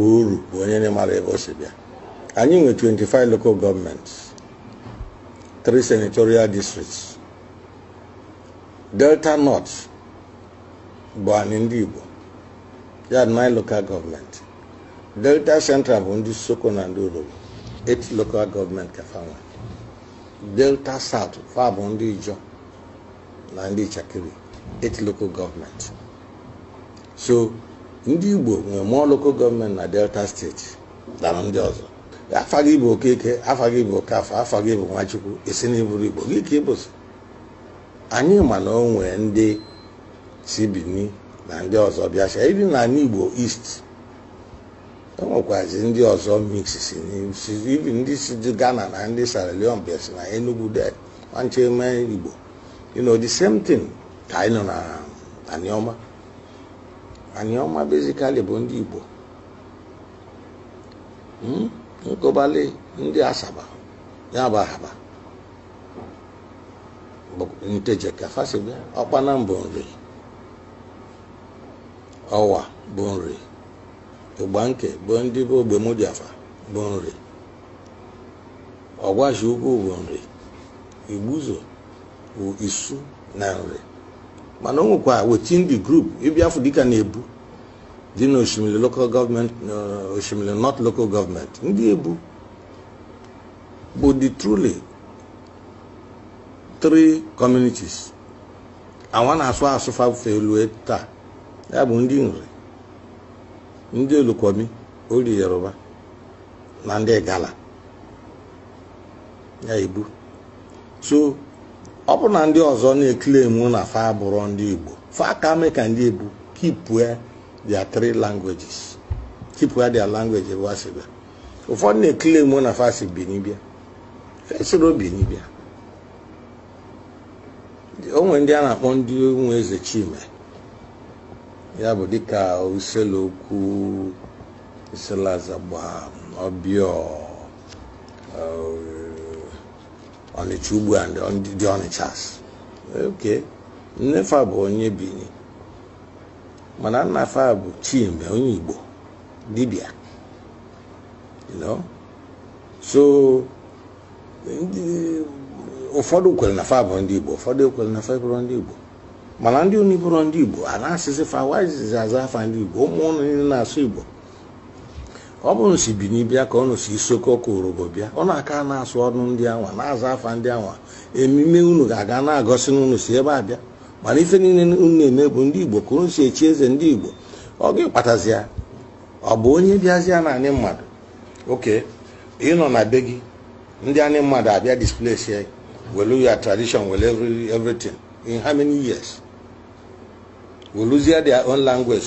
uru bụ onye na emara ebe o si bịa anyị nwe 25 local gọọmenti 3 senatorial districts delta north bụ anyị ndị igbo ya 9 local gọọmenti delta central bụ ndị soko na ndị orobo 8 local gọọmenti ka fanwe delta south fa bụ ndị ijo na ndị ichakiri 8 local gọọmenti so ndị igbo nwere mụọ lokal gọọmenti na delta steeti dara ndị ọzọ afa gị bụ okeke afa gị bụ okafa afa gị bụ nwachukwu isi na iburu igbo gị ka ịbụsị anyị ma na o nwee ndị Sibini na ndị ọzọ bịacha ịdị n'ala igbo east e nwekwazi ndị ọzọ mix si ibi ndị si ghana na ndị sierra leone bịa si na enugu de nche igbo you know the same thing ka anyị nọ na aniọma ọma bezikali bụ ndị igbo hmm? nkobali ndị asaba ya bụ ahaba ntejekafasibe ọkpana bụ nri ọwa bụ nri nke bụ ndị bụ ogbemodiafa bụ nri ọgwashi ukwu bụ nri igbuzo bụ isu na nri mana o nwekwa wetin dị group ịbịafụ dịka na-ebu dị na osimiri local gọọmenti osimiri not local gọọmenti ndị ebu bụ the truly three communities awa na-asụ asụ elu e taa ya bụ ndị nri ndị olukwomi ori yoruba na ndị gala ya ebu so ọ bụ na ndị ọzọ na-eklemu na fa bụrụ ndị igbo fa ka mee ka ndị igbo kipue their three languages kipue their langweji ebe a sịbịa ụfọdụ na-eklemu na fa si binibịa fesoro binibịa onwe ndị a na-akpọ ndị nwe eze chime ya bụ dịka uselokwu iselazagba ọbịọ Ọnịcha ugbu a ndị dị Ọnịcha oke nnefa bụ onye Bini mana nnafa bụ Chimbe onye Igbo dibịa so ụfọdụ kwere na fa bụ ndị Igbo ụfọdụ kwere na fa bụrụ ndị Igbo mana ndị onye bụrụ ndị Igbo a na-asịzi fa wazizi aza afa ndị Igbo ụmụ ụnụ na-asụ Igbo ọ bụrụ si bi n'ibia ka ọ nụ si isoko ọkụ orobo bịa ọ na-aka na-asụ ọnụ ndị anwa na-azụ afa ndị anwa emume unu ga-aga na-agọsị n'unu si ebe a bịa mana ife niile unu na-eme bụ ndị igbo ka unu si echi eze ndị igbo ọ ga-akpatazi ọ bụ onye bịazi na anyị mmadụ oke ịnọ na be gị ndị anyị mmadụ abịa displace welu ya tradition welu everything in how many years weluzie their own language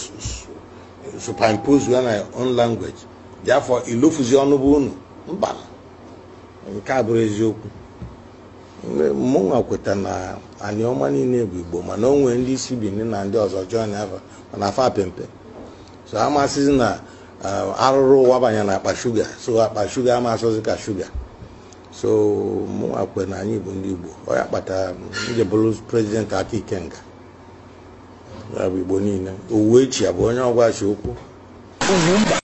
superimpose ya na own language dị afọ ilofuzi ọnụ bụ unu mba nke a bụrụ eziokwu mụnwa kweta na anyị ọma niile bụ igbo mana onwe ndị isi bini na ndị ọzọ jọn afọ mana afọ apempe so amasịzi na arụrụ ụwa banye na akpa shuga so akpa shuga amasịzi ka shuga so mụnwa kwe na anyị bụ ndị igbo ọ ya kpatara bụrụ prezidenti aka ikenga ya bụ igbo niile owuwe bụ onye ọgwa chi okwu